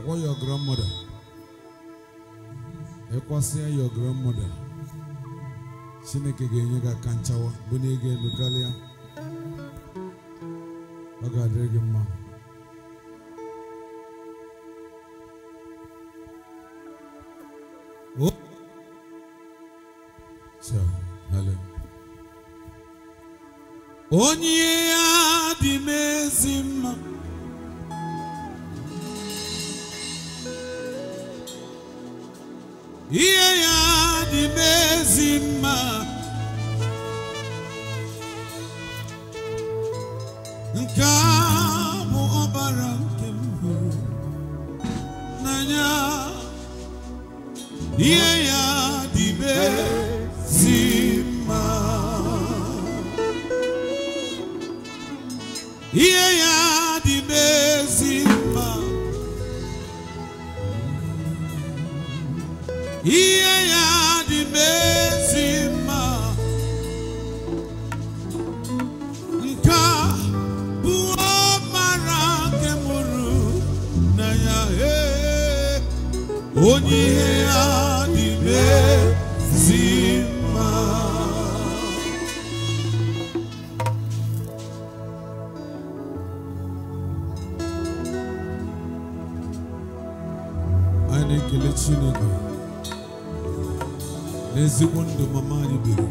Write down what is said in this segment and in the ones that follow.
What your grandmother? Ekwasia your grandmother. Chineke ga-enye gị aka nchawa bụ na ị ga-elu karịa ọ anyị na-ekele Chineke n'ezigbo ndụ mama anyị biri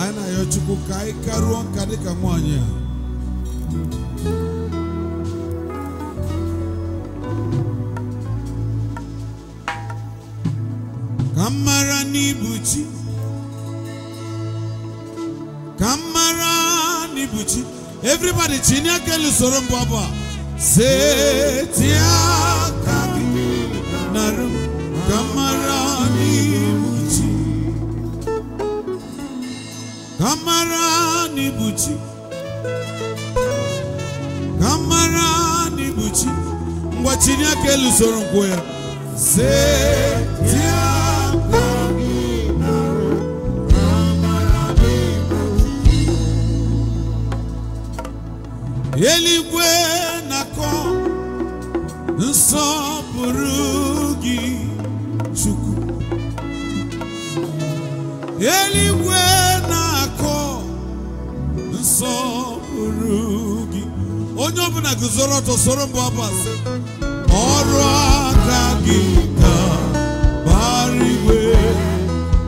anyị na-ayọ Chukwu ka anyị karụọ nka dịka nwaanyị a mmadụ tinye aka lusoro mbụ abụ a setie nkwụ ya solo to solo mbo apase oro akagita bariwe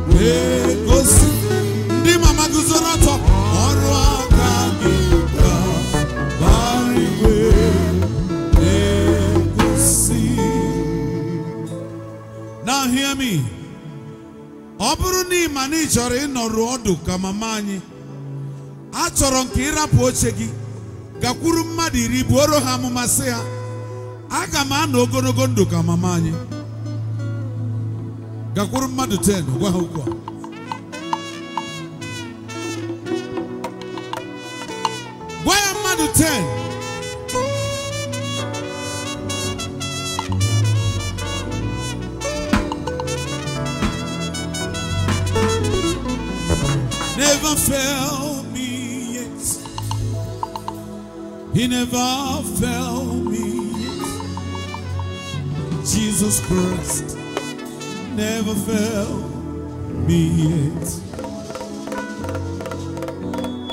we kosi e di mama guzona to oro akagita bariwe we kosi e now hear me oburu ni mani jore ino ruodu kama manyi achoro nkira poche gi gakwuru mmadụ iri buoro ha amụmasị ha aga m anọ ogologo ndụ ka mama anyị gakwuru mmadụ 10 gwa ha okwu a He never failed me. Jesus Christ never failed me yet.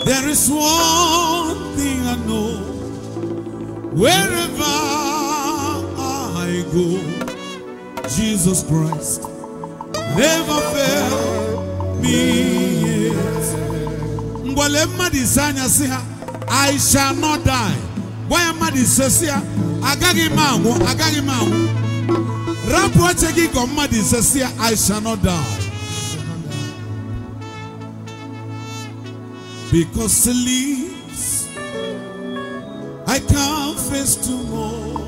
There is one thing I know wherever I go, Jesus Christ never failed me yet. I shall not die mmadụ ise si ya agaghị m anwụ agaghị m anwụ rapụ oche gị gọ mmadụ ise si ya I shall not die because he lives I can't face tomorrow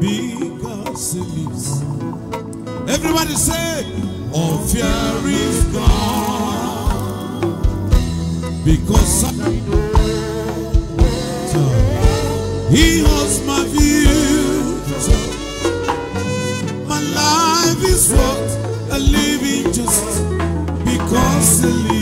because he lives everybody say all oh, fear is gone because I know He holds my future. My life is worth a living just because I live.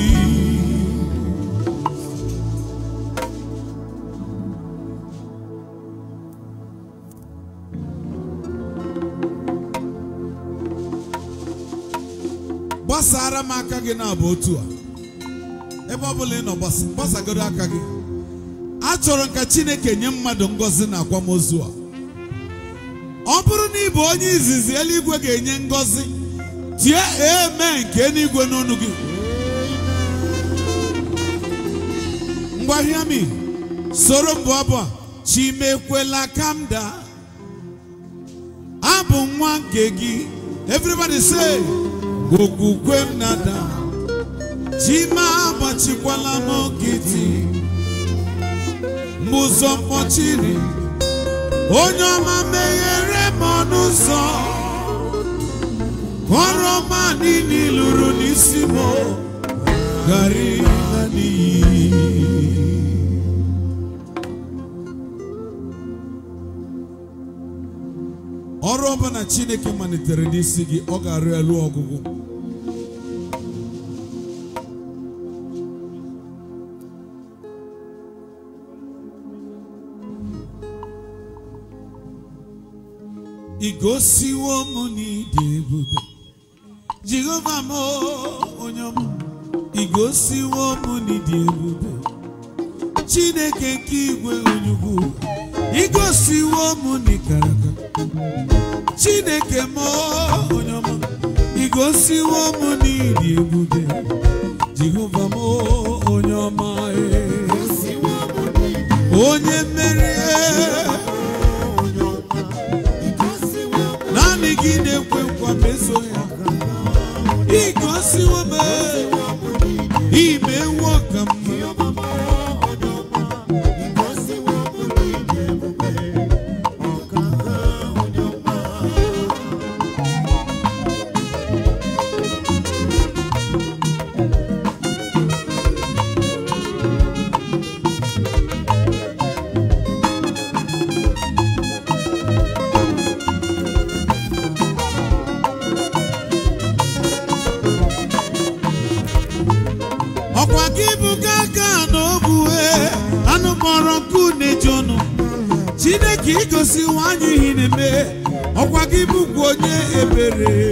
Gbasara m meu gị na-abụ otu a meu ọ bụla ị nọ gbasagoro meu gị chọrọ ka chineke nye mmadụ ngozi na akwamozu a ọ bụrụ na ị onye izizi eluigwe ga-enye ngọzi tie eme nke eluigwe n'onu gị ngwa soro mbụ abụ a chimekwela kamda abụ nwa nke gị everybody say okwukwe m nada chima agbachikwala m nkịtị ụzọ mkpọchiri onye ọma meghere m ọnụ ụzọ ọrụ ọma niile lụrụ n'isi m gari na ọrụ ọbụla chineke malitere n'isi gị ọ ga-arụ elu ọgwụgwụ igosiwo m n'ịdị ebube jehova m onye m igosiwo m n'ịdị ebube chineke nke igwe onyugwu igosiwo m n'ikaraka chineke m onye m igosiwo m n'ịdị ebube jehova m onye ọma e. onye mmeri megide nkwekwa meso ya ị gosi ome ime nwoke m ka nwa anyị ihe na-eme ọkwa gị bụkwa onye ebere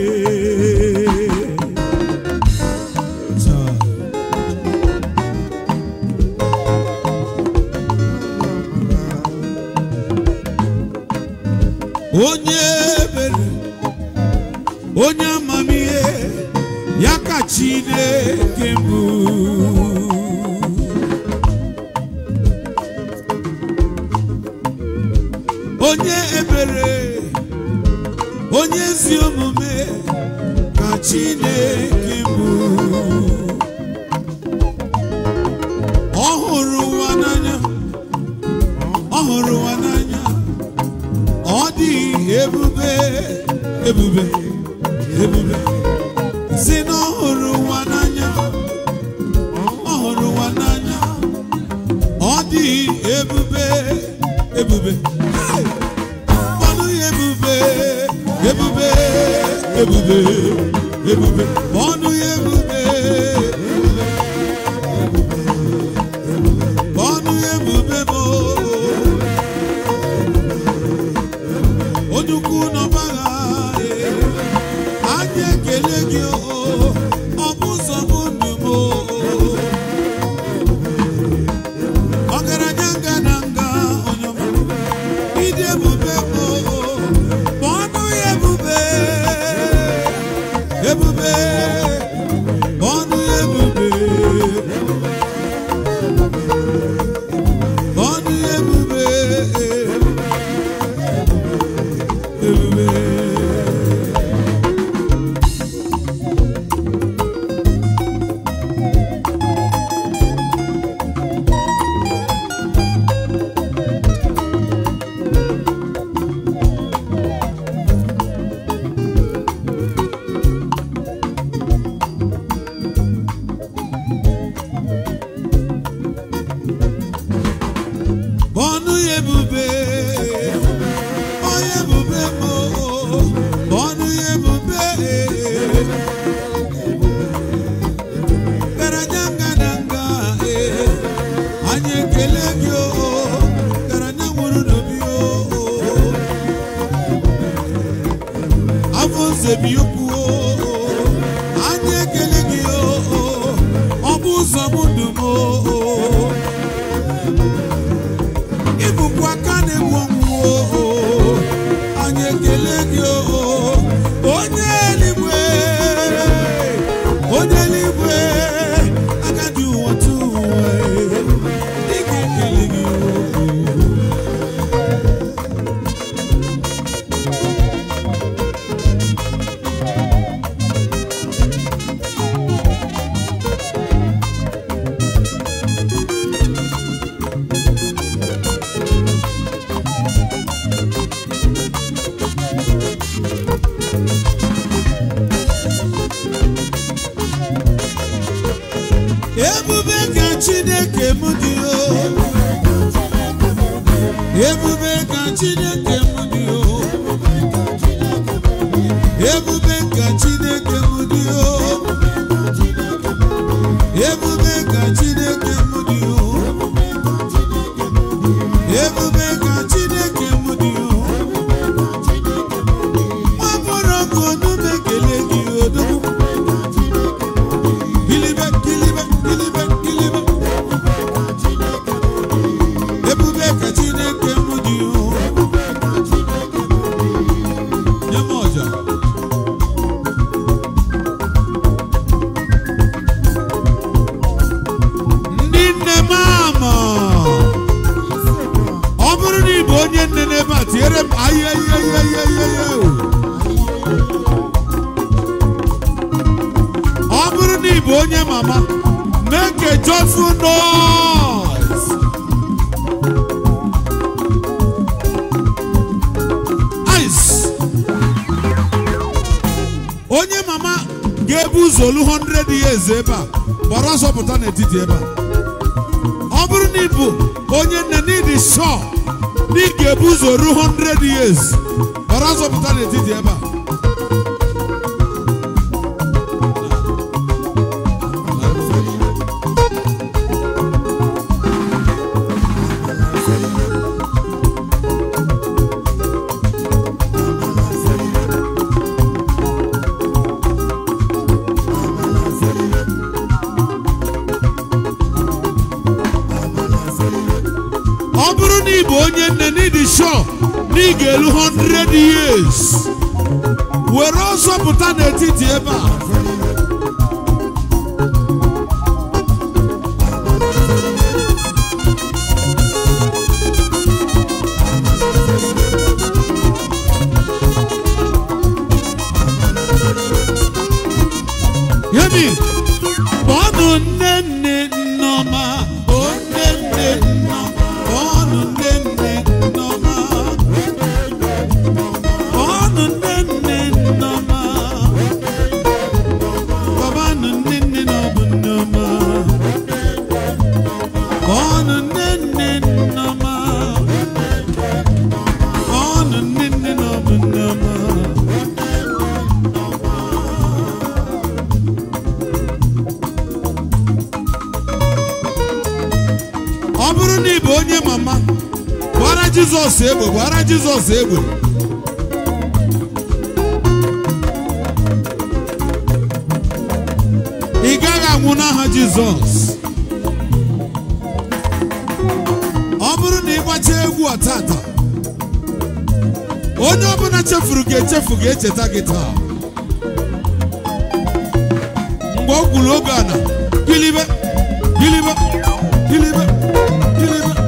ọ bụrụ na ị onye mama make a joyful noise ice onye mama ga-ebu ụzọ olu 100 years ebe a gbara ọsọ pụta n'etiti ebe a ọ bụrụ na ị bụ onye nne n'ịdị shọ na ị ga-ebu ụzọ ruo 100 years ọra azọpụta n'etiti ebe a ọ bụrụ na ị bụ onye nne n'ịdị shọọ na ị ga-elu 100 years were ọsọ pụta n'etiti ebe a yemi kpọọnụ nne nne nneọma Jizọs egbe ị gaghị anwụ n'aha Jizọs ọ bụrụ na ị gbacha egwu ọtata onye ọbụla chefuru gị echefu ga-echeta gị taa mgbe ọ gwuru oge na gịlịbe gịlịbe gịlịbe gịlịbe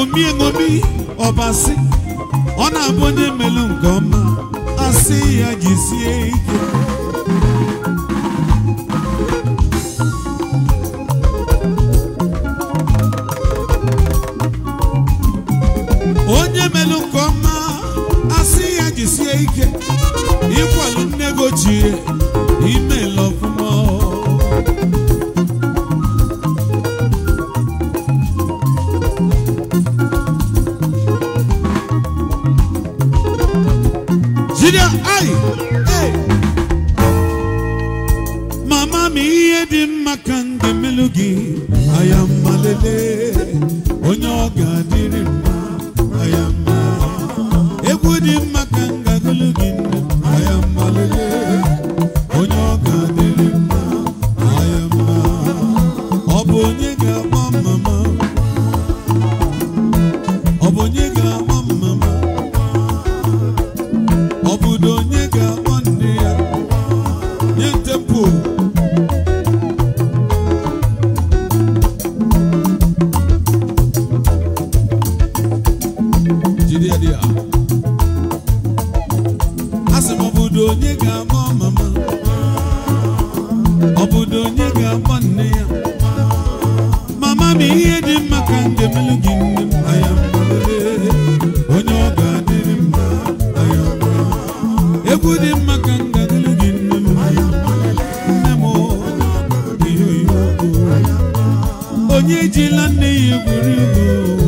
ṅomi ṅomi ọbasị ọ na-abụ onye melu nke ọma asị ya jisie ike jide m obodo onye ga-ama mama obodo onye ga-ama nne ya mama m ihe dị mma ka ndemelu gị nne m aya onye ọ ga-adịrị mma aya egwu dị mma ka ndadịrị gị nne m nne m ihe oyibo onye ejila nne ya egwuregwu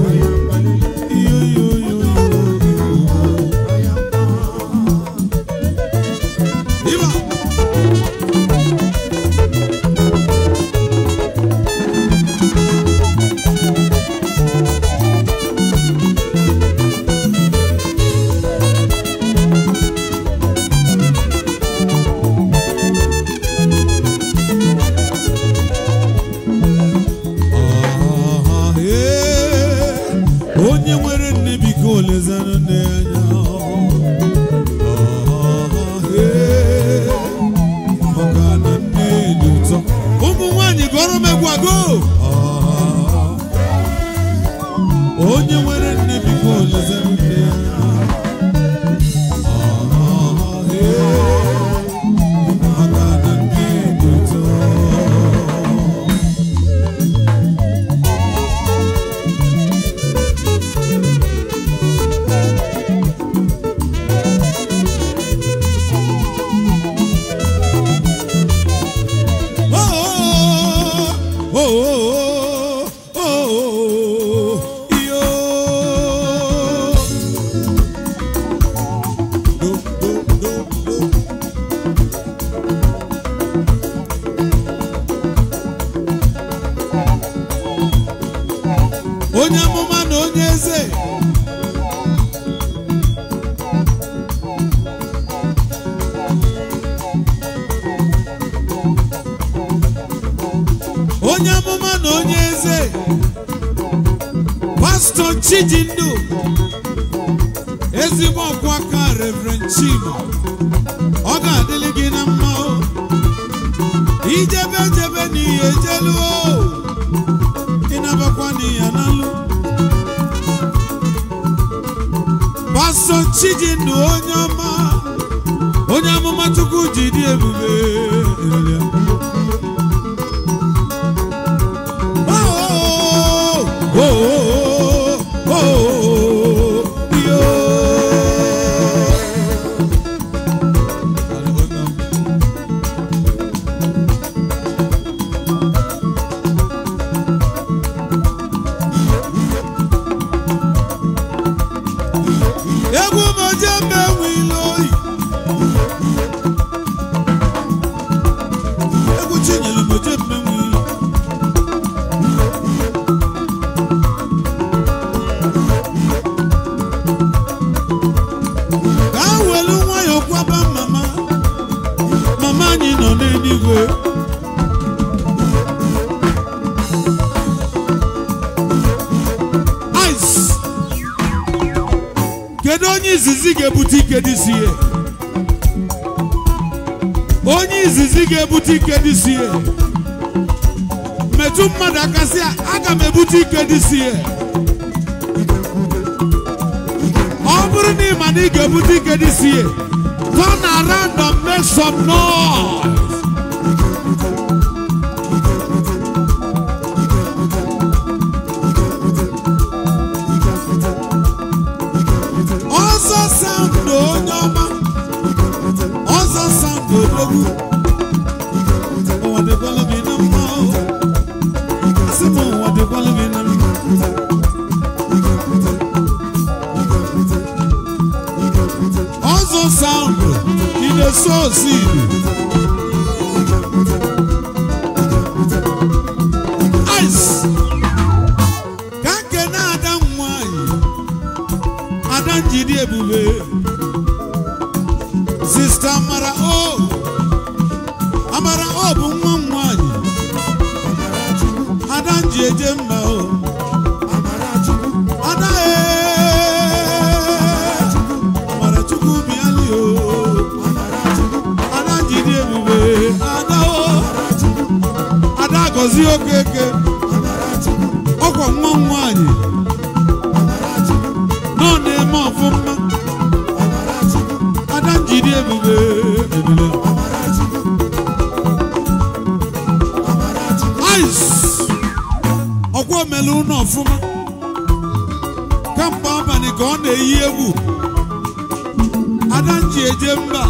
ike dịsi metu mmadụ aka sị aga m ebute ike dịsi ọ bụrụ na ị ma na ị ga-ebute ike dịsi turn around and make some noise sozinho, Ice. Ngozi Okeke ọkwa nwa nwaanyị nọ na-eme ọfụma ada njiri ebube ebube ọkwa omelu ụlọ ọfụma kamgbe abalị ka ọ na-eyi egwu ada nji eje mba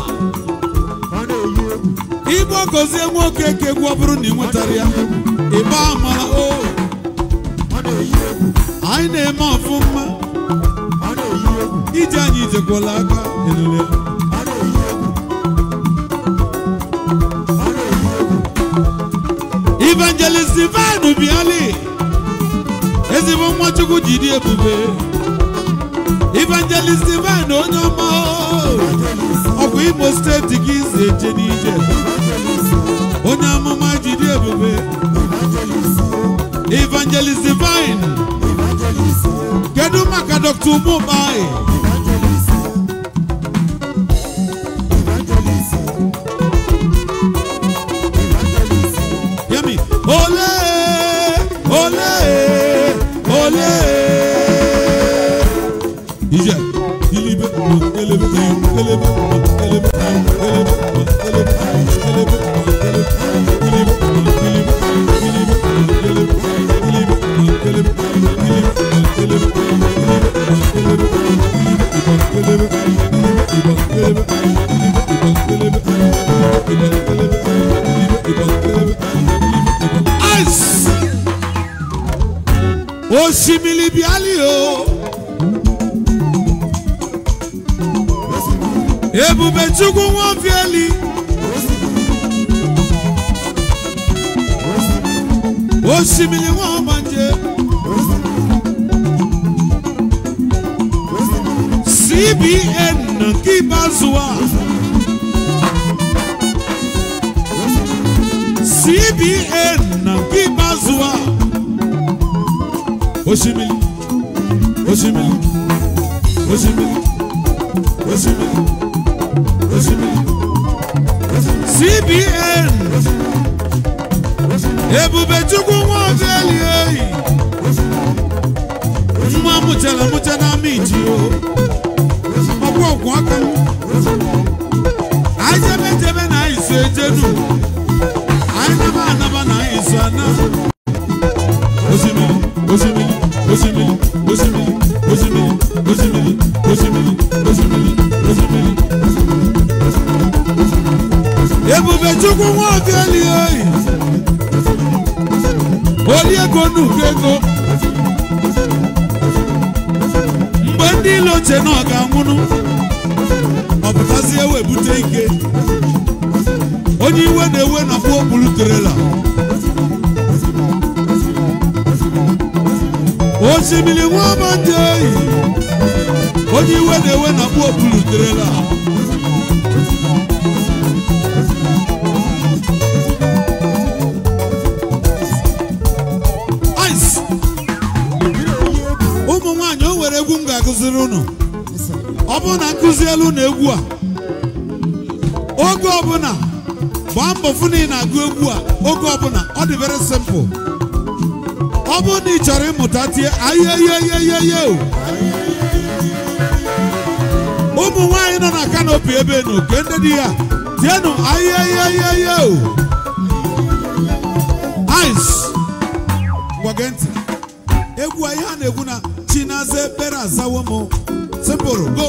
igbo gozie nwa Okeke egwu ọ bụrụ na ị nwetara ya ịba amara anyị na-eme ọfụma ije anyị ijekwala aka elele Evangelist Ivan Obiali ezigbo nwachukwu jiri ebube Evangelist Ivan onye ọma bụ Imo steeti gị si eje n'ije onye amụma Evangelis Evangelist Divine kedu maka Dr. Umubai Ice. Osimili bi ali o. Ebube Chukwu wọn fi eli. Osimili wọn ma je. CBN Kibazuwa. CBN na Bimazoa Osimiri Osimiri Osimiri Osimiri Osimiri CBN Ebube Chukwu Nwafeli eyi nwa mụchara mụcha na miji o ọgwụ ọgwụ aka ajebe jebe na iso ejenu ebubechukwu nwaobieli oyi oli ego nnukwu ego mgbe ndị ilo oche na ọ ga-anwụnụ ọpụtazie webute ike onye iwe na-ewe na pụọ buru trela osimiri nwa amadị eyi onye iwe na-ewe na mkpuopuluterela ụmụ nwanyị o nwere egwu m ga-akụziri ọ bụrụ na elu na egwu a oge ọbụla gbaa mbọ fụ na ị na-agụ egwu a oge ọbụla ọ dị very simple ọ bụrụ na ị chọrọ ịmụta tie ayeyeyeyeye ụmụ nwaanyị nọ na kanopi ebe nụ nke ndị di ya tienụ ayeyeyeye ice gwage ntị egwu anyị ha na-egwu na chinaze bere azawo m simple go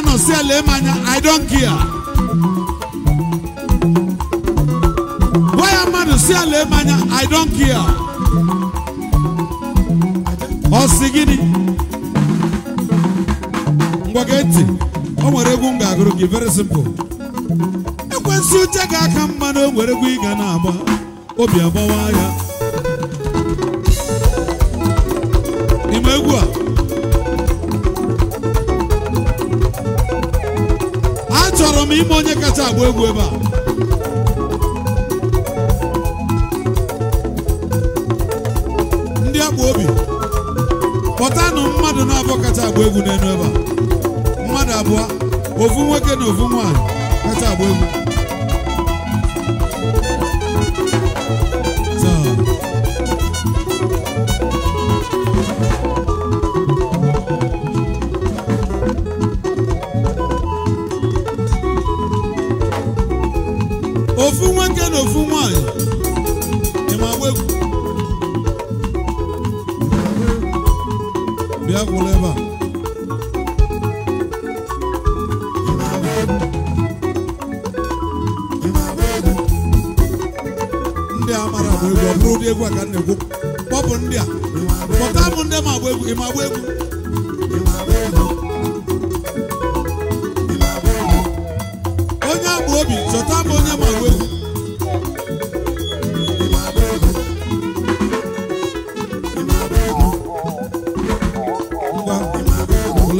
anọ si ele m anya I don't care gwa ya mmadụ si ele m anya I don't care ọ sị gịnị ngwa gị ntị o nwere egwu m ga-agụrụ gị very simple ekwensu uche gị aka mma na o nwere egwu ị ga na-agba obi agbawa ya ime egwu a achọrọ m ime onye kacha agba egwu ebe a ndị agba obi pọtanụ mmadụ na abụ kacha agba egwu n'elu ebe a mmadụ abụọ ofu nwoke na ofu nwaanyị kacha agba egwu ofu nwanyị ịma bụ egwu bịa gwụla ebe a ndị egwu a ka m na bụ kpọpụ ndị a kpọta m ndị ma agba egwu ị ma agba egwu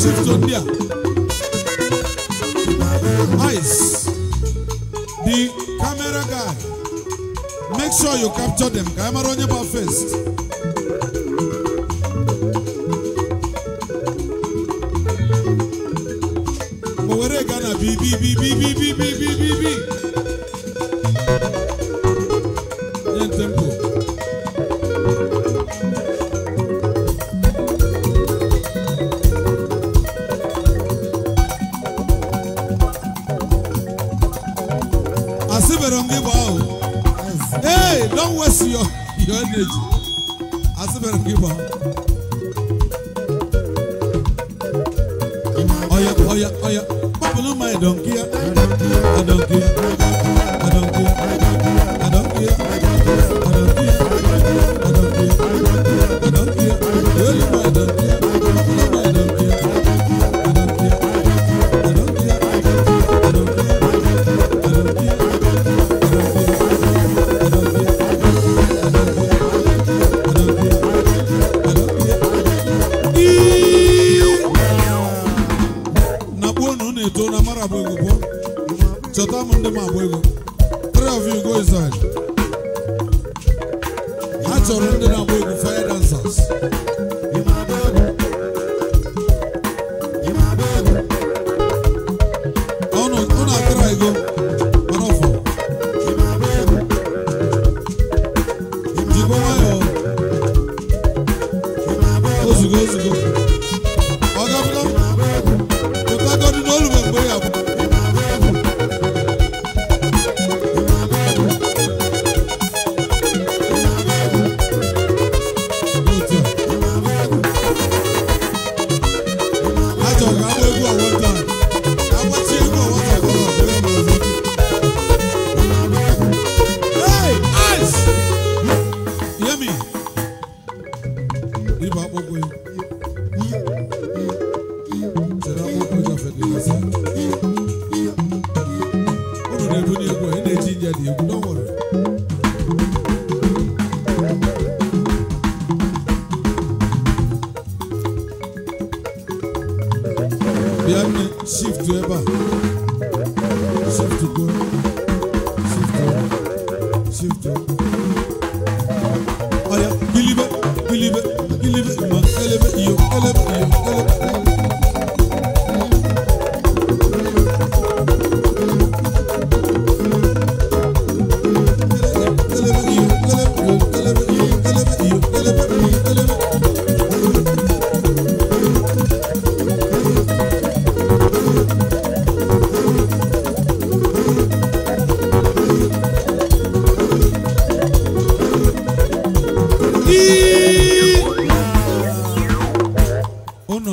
shift ndị a nice the camera guy make sure you capture them ka anyị mara onye bụ first o were gaa na bibibibibibibibibi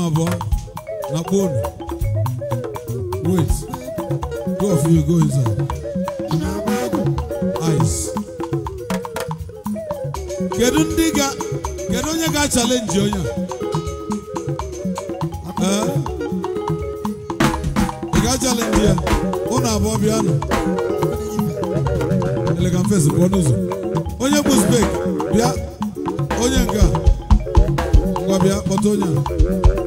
Nabo, Nabon. Wait. Two of you go inside. Ice. Kedu ndị ga kedu onye ga chalenji onye a? Ị ga chalenji ya? Ụnụ abụọ bịanụ. Elegant fesi pụọ n'ụzọ. Onye bụ spek bịa onye nke a. Ngwa bịa kpọta onye a.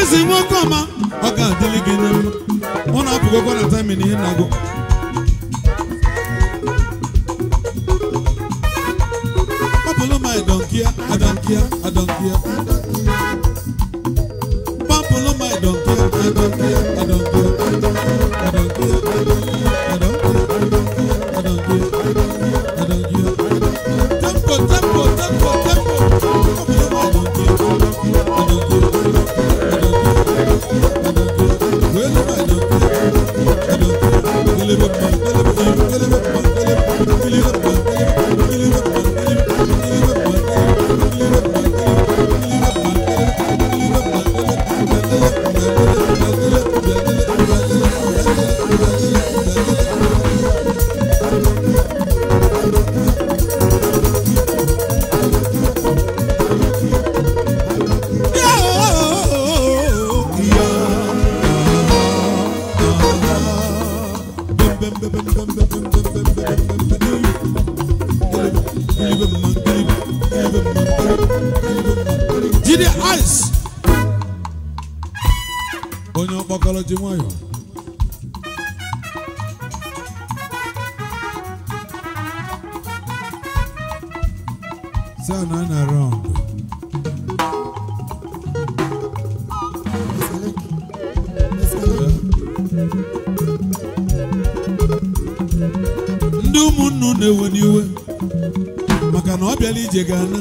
eze nwoke ọma ọ ga-adịrị gị na ọ na-apụgokwa na tamin ihe na-agụ sound na na ndị ụmụnnu na-ewe n'iwe maka na ọ bịala ije ga-ana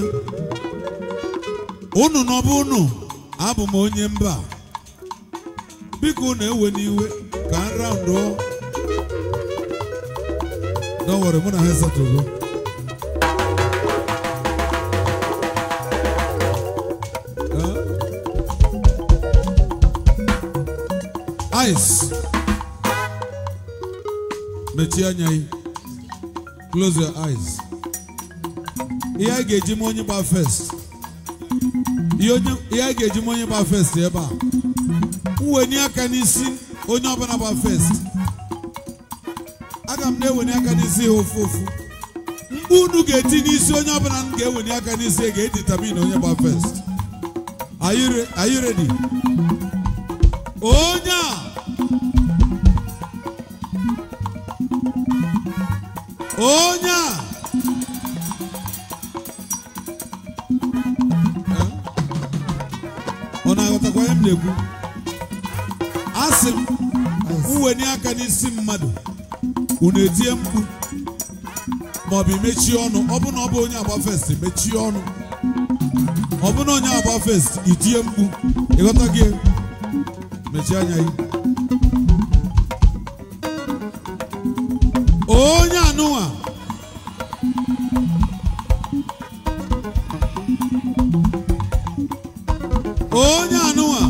unu na ọbụ unu abụ m onye mba biko na ewe n'iwe ka nra ndụ dọwere mụ na ha esatugo eyes mechie anya gị close your eyes ihe a ga-eji ma onye gba first ihe a ga-eji ma onye gba first ebe a mwenye aka n'isi onye ọbụla gba first aga m na-ewenye aka n'isi ha ofu ofu unu ga-eti n'isi onye ọbụla m ga-ewenye aka n'isi ga-editamin onye gba first are you ready? Oh! onye a ọ na-aghọtakwa ihe m na-ekwu asị m wenye aka n'isi mmadụ unu etie mkpu maọbụ imechie ọnụ ọbụna ọ bụ onye agba fest mechie ọnụ ọbụna onye agba fest itie mkpu ịghọta gị mechie anya gị onye anụnwa onye anụnwa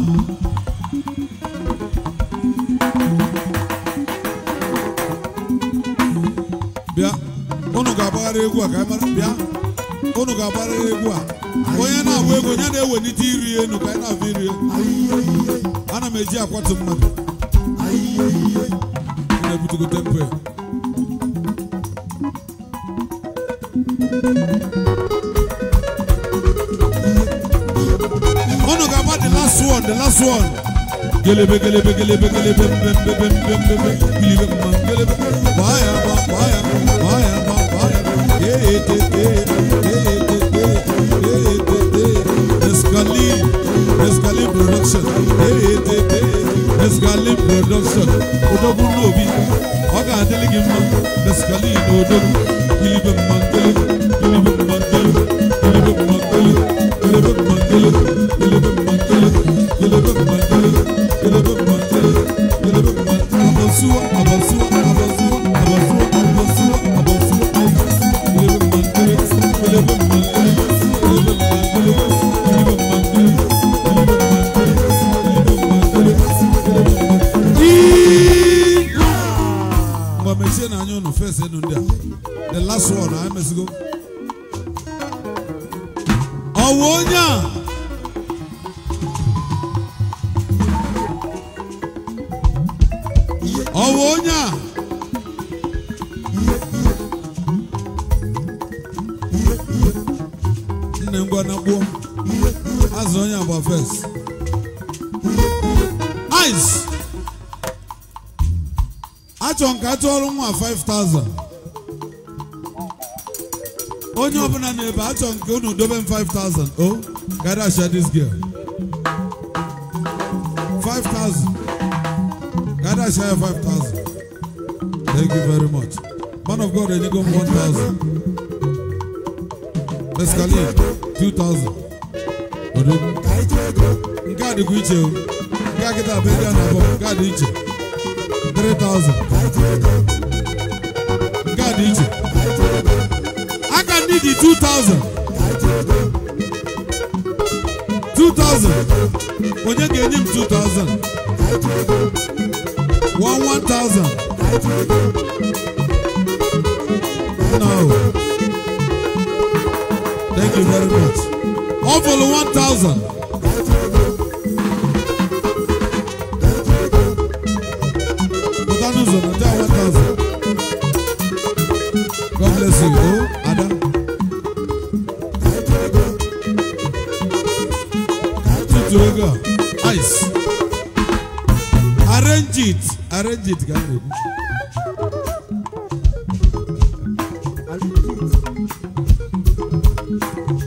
bịa unu ga-agbagharị egwu a ka anyị mara bịa unu ga-agbagharị egwu a onye na-agba egwu onye na-ewelite iri elu ka anyị na-abụ iri ana m eji akwatu mmadụ gelebe gelebe gelebe gelebe bem bem bem bem bem bem gelebe man gelebe vaya va vaya vaya va vaya ye ye te te ye ye te te ye ye te te esgali esgali production ye ye te te esgali production odogun lobi oga adelege man esgali odogun gelebe man gelebe gelebe man gelebe gelebe man gelebe gelebe man gelebe that one go to dobe five thousand oh gada share this girl five thousand gada share five thousand thank you very much man of god enigo one thousand mescaline two thousand odo nke a God, get o God, you kịta bụ ego three thousand. di two thousand two thousand onye ga-enye m two thousand one one thousand no thank you very much All for the one thousand. God bless you. Oh, Adam. logo ice arrange it arrange it ka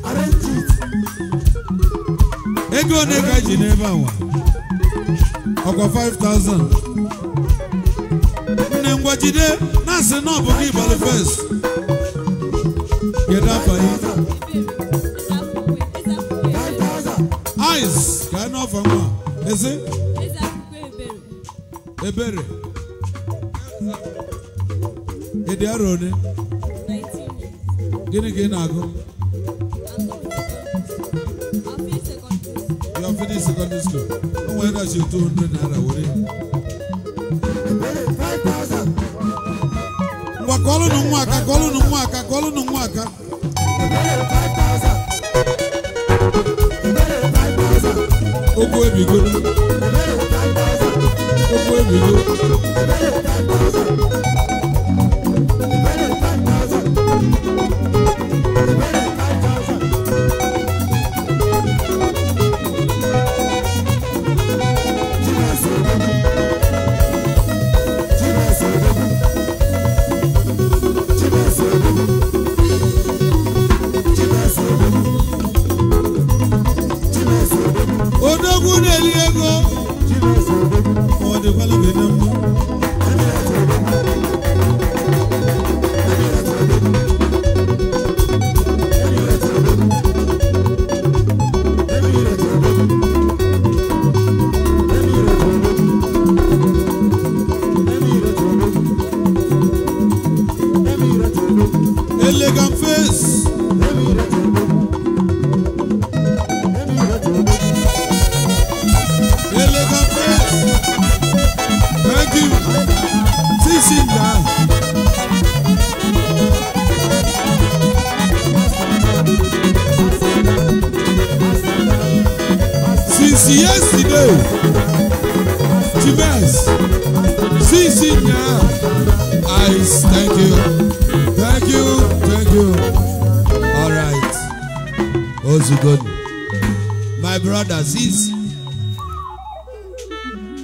Arrange it. ego one ka ji n'ebe awa ọkwa 5000 nne ngwajide na-asị na ọ bụ gị ịbalị fes kedu afọ afọ mma ezi ebere ịdị arọ ole gịnị ka ị na-agụ your finish secondary school o nwere dachi 200 naira were ngwa kọọlụnụ nwa aka kọọlụnụ nwa aka kọọlụnụ nwa aka ụkwụ ebigo okwu ebigo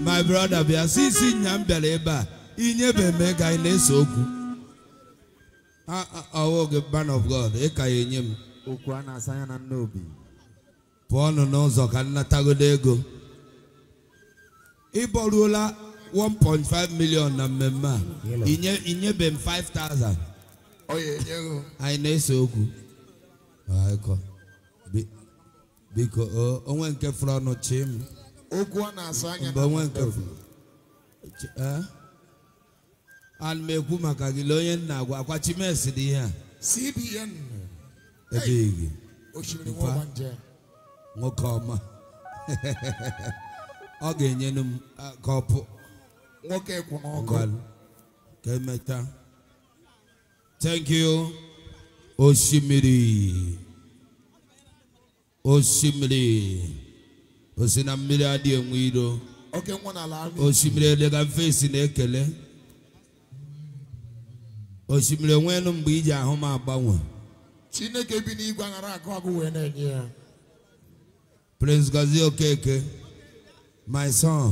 my brother bịa si isi nya m bịara ebe a inyebeme ka anyị na-ese okwu man of God ị ka ya enye m okwu a na-asa anya na nna obi pụọnụ n'ụzọ ka nnatagodo ego ịbọruola 1.5 million na mmemme a inyebe m 5,000 anyị na-ese okwu biko onwe nke fụrụ ọnụ m okwu ọ na asa anya ana m ekwu maka gị onye nna agwa akwa chimesi dị ihe a CBN ebeghị nwoke ọma ọ ga enye m kọpụ nwoke kwụ n'ọkụ ka emeta thank you osimiri osimiri osi na mmiri adịghị enwe iro osimiri elega fesi na-ekele osimiri enweelu mgbe iji ahụ m agbanwe chineke bi n'igwe aghara agụ agụ wee na-enye ya Prince Gazi Okeke my son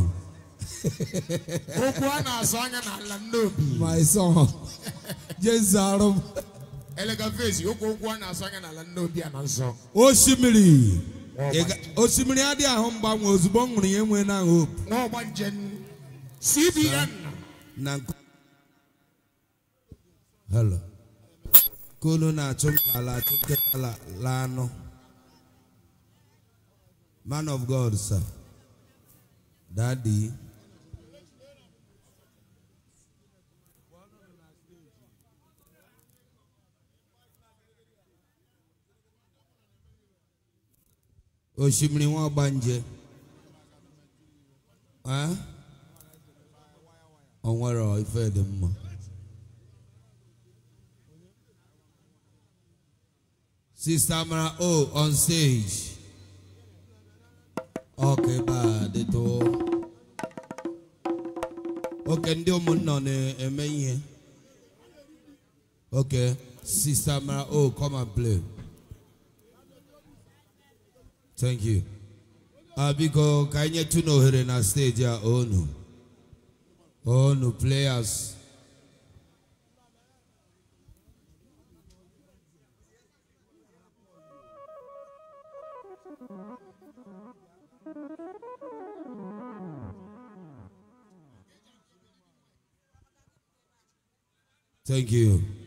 okwu a na-asụ anya n'ala nnobi my son jezarụ m elega fesi okwu okwu a na-asụ anya n'ala nnobi a na nsọ osimiri osimiri adịghị ahụ mgbanwe ozugbo m ṅụrụ ya enwe na hope CBN na hello kolu na-achụ nkala achụ nkịta la man of God sir dadi osimiri wọn bá ń jẹ ọ nwere ife dị mma Sister Amara O on stage. Okay, bad it all. Okay, ndị ụmụnna na-eme ihe. Okay, Sister Amara O, come and play. Thank you. Abiko, kanya ka anyị nyetụ n'ohere na steji a onu onu players Thank you.